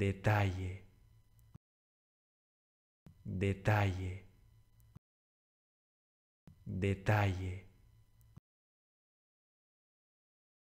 detalle, detalle, detalle.